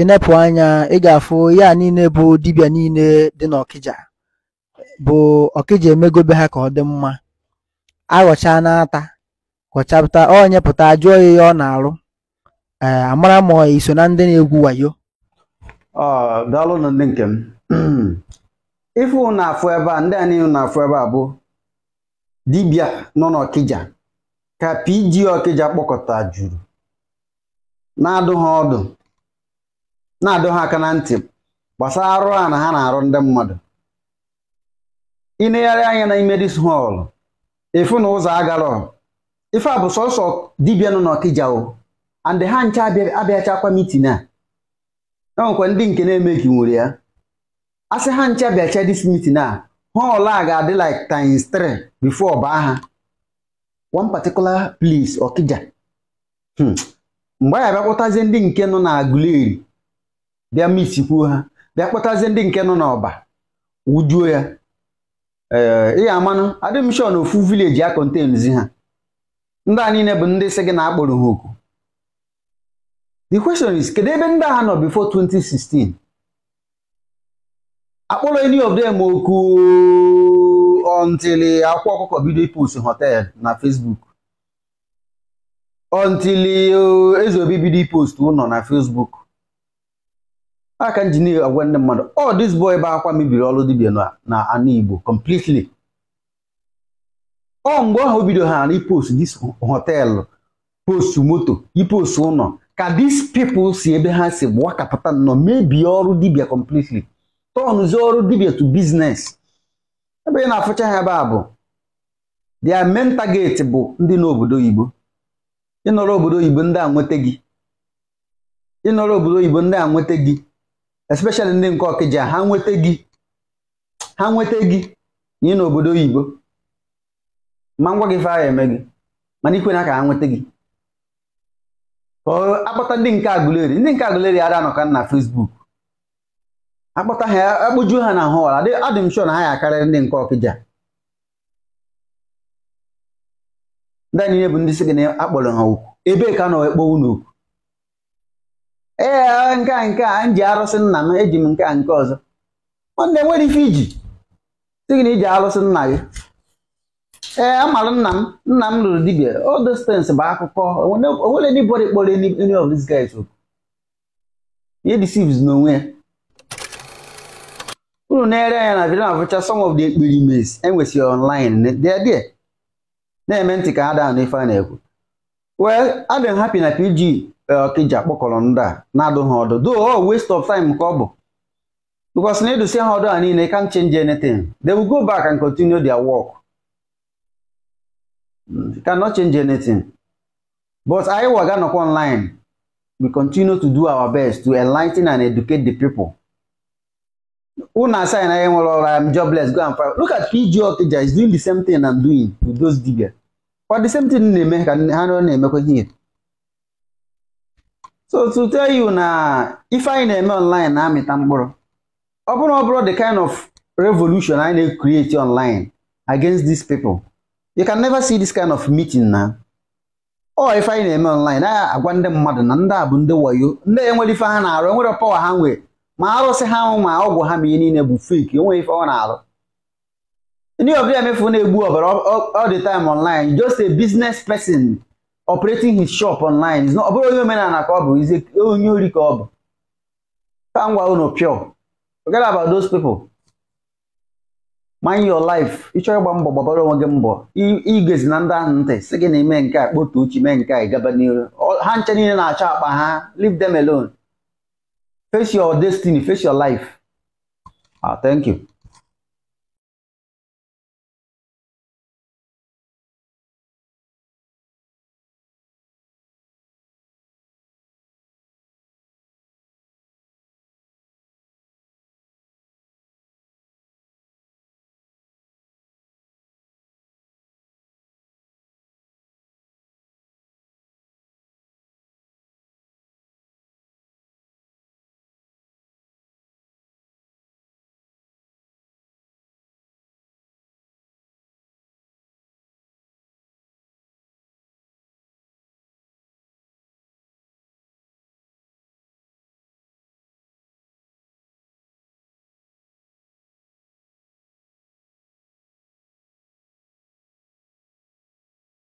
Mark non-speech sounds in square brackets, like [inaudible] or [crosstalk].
ịnepụ anya ị ga-afụ ya niile bụ dibịa niile dị n'ọkịja bụ ọkịja emegobe ha ka ọ dị mma aghọcha n'ata ghọchapụta onye pụta jụọ ya ọ na-arụ ee eh, amara m iso na ndị na-egwu wayo na ndị nke m [clears throat] ife ụnụ afụ ebe a ndị a niile na-afụ ebe a bụ dibịa nọ n'ọkịja ka PG ọkịja kpọkọta juru na-adụ ha ọdụ na-adọ ha aka na ntị gbasara arụ a na ha na-arụ ndị mmadụ ịnegharị anya n'ime dis họl efu na ụzọ agarọ ife a bụ sọsọ dibịa nọ n'Ọkịja and ha ncha abịachakwa mitin a enwekwa ndị nke na-emeghị nwere ya a sị ha ncha bịacha dis mitin a họl a ga-adị like times 3 before baa ha one particular place Ọkịja hmm. mgbe a ya bịakpụtazie ndị nke nọ na Aguleri bịa misikwuo ha bịa kpọtazie ndị nke nọ n'ọba wujuo ya ee ị amanụ adịm ofu vileji a kontenzi ha ndị a niile bụ ndị si gị na-akpọrọ ha oku the question is kedu ebe ndị agha nọ before 2016 akpọrọ any of them oku until akwụkwọ ọkụkọ bido ịpụsị hotel na Facebook until uh, ezeobi bido ụlọ na Facebook aka injinia agwa ndị mmadụ ọ oh, this boy bụ akwa mebiri ọrụ dibia na ana Igbo completely ọ mgbe ahụ bido ha na ipost dis hotelụ post moto ipost ụlọ ka dis people si ebe ha si gbakapụta nọ mebie ọrụ dibia completely tọnụzie ọrụ dibia to business ebe ị na-afụcha ha ebe a bụ their main bụ ndị n'obodo oyibo ịnọrọ obodo oyibo ndị a nweta gị ịnọrọ obodo ndị a nweta gị especially ndị nke ọkịja ha nweta gị ha nweta gị na ị n'obodo oyibo ma ngwa gị fa eme gị mana ikwe na ka ha nweta gị akpọta ndị nke Aguleri ndị nke Aguleri ara anọka na fesbuk akpọta ha akpụjuo e ha na hụwara adị m na ha ya akarịrị ndị nke ọkịja ndị niile bụ ndị si gị na akpọrọ ha okwu ebee ka nọ ekpo unu ee eh, ah, nke a nke a m ji arụsị nna m eji m nke a nke ọzọ nwanne nwere ife iji sị gị na iji arụsị nna gị ee eh, amara nna m nna m lụrụ dibia all those bụ akụkọ onwere anybody kpọrọ any of these guys okwu ihe deceives n'onwe ya unu na-ere anya na video abụcha some of the experiments enwesịrị online na-eme ntị ka ha daa n'ife a na-ekwu Wee I've hapi na PG ọka iji akpọkọrọ ndị a na-adụ ha ọdụ do oh, waste of time ka ọ bụ because na edusi ha ọdụ a niile can't change anything they will go back and continue their work cannot change anything but anyị waga nọkwa online we continue to do our best to enlighten and educate the people unu assign anyị nwere ọrụ am jobless go and find look at PG Okija is doing the same thing I'm doing with those diggers kwa the same thing na-eme ka ha na-emekwa ihe so to tell you na ife anyị na-eme online na-amịta mkpụrụ ọ bụrụ ọ bụrụ the kind of revolution anyị na-create online against these people you can never see this kind of meeting na ọ ife anyị na-eme online na-agwa ndị mmadụ na ndị a bụ ndị wayo ndị enwere ife ha na-arụ enwere pawa ha nwee ma arụsị ha ma ọgwụ ha ma ihe niile bụ fake enweghị ife ọ na-arụ ndị ọbịa emefu na-egbu ọbara all online just a business person operating his shop online ọ bụrụ onye omenala ka ọ bụ onye ori ka ọ bụ ka gwa unu pure forget about those people mind your life ịchọrọ ịgba mbọ gbabara onwe gị mbọ igezi na ndị ahụ ntị si gị na ime nke a kpotu uchi mee nke a gaba n'iru ha nche niile na-achọ akpa ha leave them alone face your destiny face your life ah thank you